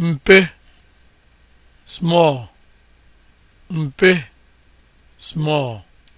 mpe small mpe small